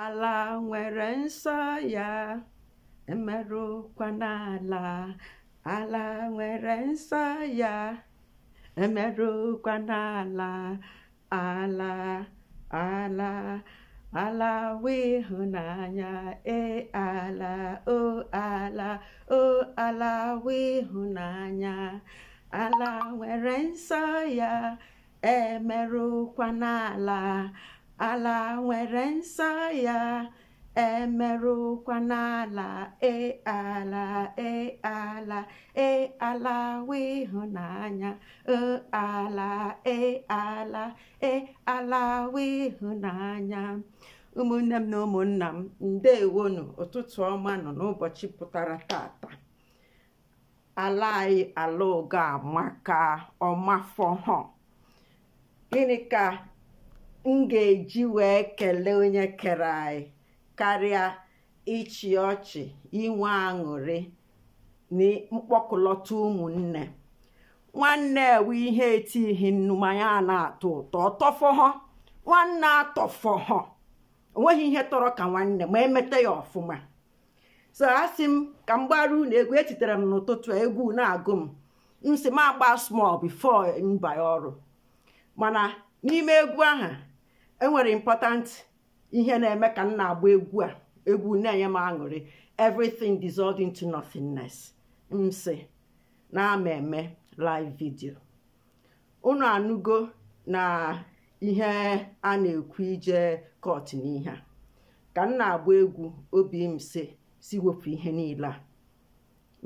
ala nwere nsọ ya emerụkwana ala ala nwere nsọ ya emerụkwana ala ala ala ala wịhụnanya e ala o ala o ala wịhụnanya ala nwere nsọ ya emerụkwana ala ala nwere nsọ ya emerụkwa n'ala e ala e ala e ala wụ ịhụnanya e ala e ala e ala wụ ụmụnne m na ụmụnna m ndewonu ụtụtụ ọma nọ n'ụbọchị pụtara tata ala anyị ala ụga amaka ọmafọhọ gịnị ka m ga-eji wee kelee onye kere anyị karịa ịchị ọchị inwe aṅụrị na mkpọkụlọta ụmụnne nwanne ewe ihe etighi nnu manya a na-atọ ụtọ ọtọfọhọ nwanne atọfọhọ onweghị ihe tọrọ ka nwanne ma emeta ya ọfụma so asị m ka m gbara unu egwu etitere m n'ụtụtụ egwu na-agụ m m si m agba small bifo mba ọrụ mana n'ime egwu ahụ enwere important ihe na-eme ka m na-agba egwu a egwu na-enye m aṅụrị everything dissolved into nothingness m sị na ama eme live video unu anụgo na ihe a na-ekwu ije kọt n'ihe a ka m na-agba egwu obi m si si wepụ ihe niile a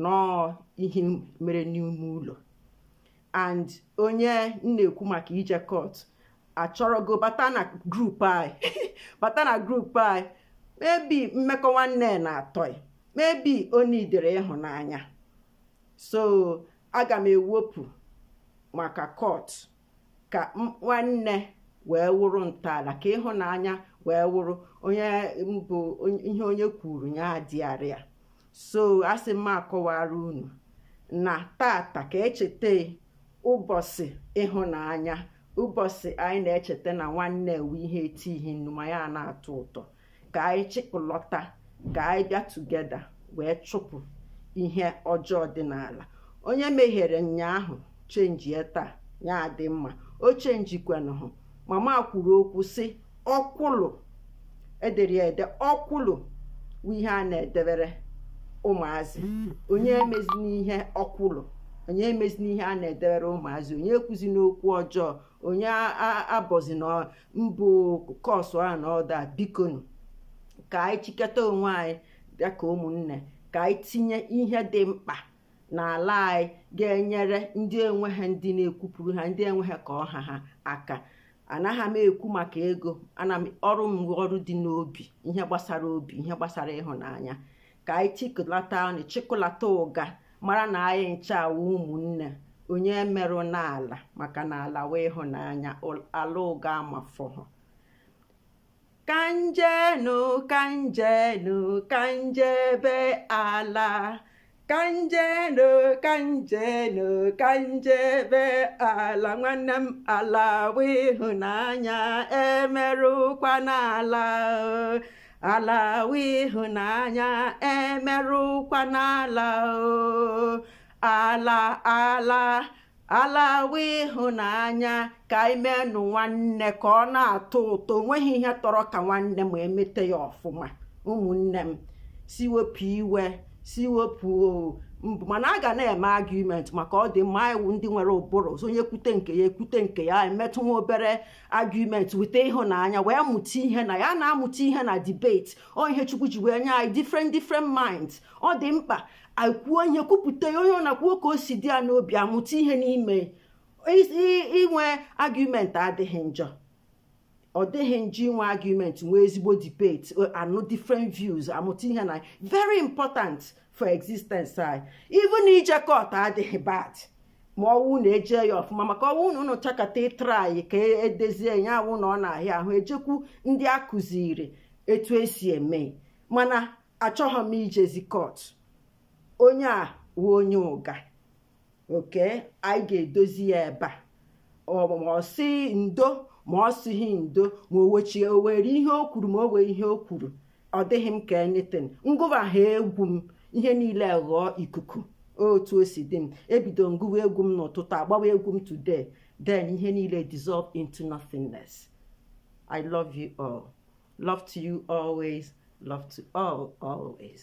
nọọ ihe mere n'ime ụlọ and onye m na-ekwu maka ije kot achọrọgo bata na grup anyị bata na grup anyị mebi mmekọ nwanne na-atọ mebi onidere ịhụnanya so aga m ewepụ maka kọt ka nwanne wee wụrụ ntọala ka ịhụnanya wee wụrụ onye mbụ ihe onye kwuru ya arịa so asị m akọwara unu na tata ka echeta ụbọchị ịhụnanya ụbọchị anyị na-echeta na nwanne ewe ihe etighị ihe ma ya na-atọ ụtọ ka anyị chịkọlọta ka anyị bịa tugeda wee chụpụ ihe ọjọọ dị n'ala onye meghere nnyaahụ chenji ya taa ya adị mma o hụ mama kwuru okwu sị ọkwụlụ edere ede ọkwụlụ bụ ihe a na-edebere ụmụazị mm. onye emezi n'ihe ọkwụlụ onye emezina ihe a na-edebere ụmụazị onye ekwuzi n'okwu ọjọọ onye abọzi na mbụ kọsụ a na ọda bikonu ka anyị chịketa onwe anyị bịa ụmụnne ka anyị tinye ihe dị mkpa n'ala anyị ga-enyere ndị enwe ha ndị na-ekwupụrụ ha ndị enweghị ka ọha ha aka anaghị m ekwu maka ego ana m ọrụ m ọrụ dị n'obi ihe gbasara obi ihe gbasara ịhụnanya ka anyị chịkọlata ọnụ chịkọlata ụga mara na anyị ncha ụmụnne onye merụ n'ala maka na ala wee ịhụnanya ala ụga amafọhụ kanjenu kanjenu kanjebe ala kanjenu kanjenu kanjebe ala nwanne m ala wee ịhụnanya emerụkwa n'ala ala we ịhụnanya emerụkwa n'ala o ala ala ala ịhụnanya ka imenụ nwanne ka ọ na-atọ ụtọ onweghị ihe tọrọ ka nwanne ma emete ya ọfụma ụmụnne m siwepụ iwe siwepụ o mbụ mana a ga na-eme argument maka ọ dị mma iwu ndị nwere ụbụrụ onye kwute nke ya ekwute nke ya emetụ nwa obere argument weta ịhụnanya wee mụta ihe na ya na-amụta ihe na debate ọ ihe chukwu ji wee nye anyị different different minds ọ dị mkpa akwuo ihe kwupụta onye ọ na ka o si dị ya n'obi amụta ihe n'ime inwe argument adịghị njọ ọ dịghị nji inwe argument nwee ezigbo debate eh, anụ different views amụta ihe na very important for existence anyị na ije kot adịghị bad ma ọwụ na eje ya ọfụma maka ọwụ na ụnụ chakata ịtra anyị ka e edezie ya awụ na ọ na-ahịa ahụ ejekwu ndị a kụziri etu esi eme mana achọghị m ijezi kot onye a wụ onye ụga oke anyị ga-edozi ya ebe a ọsị ndo ma ọ sịghị ndo ma o wechie o were ihe o kwuru ma o ihe o kwuru ọ dịghị m ka enitin ngụwa ha egwu m ihe niile ghọọ ikuku otu o si dị m ebido ngụwa egwu m n'ụtụtụ agbawa egwu m today then ihe niile dissolve into nothingness i love you all love to you always love to all always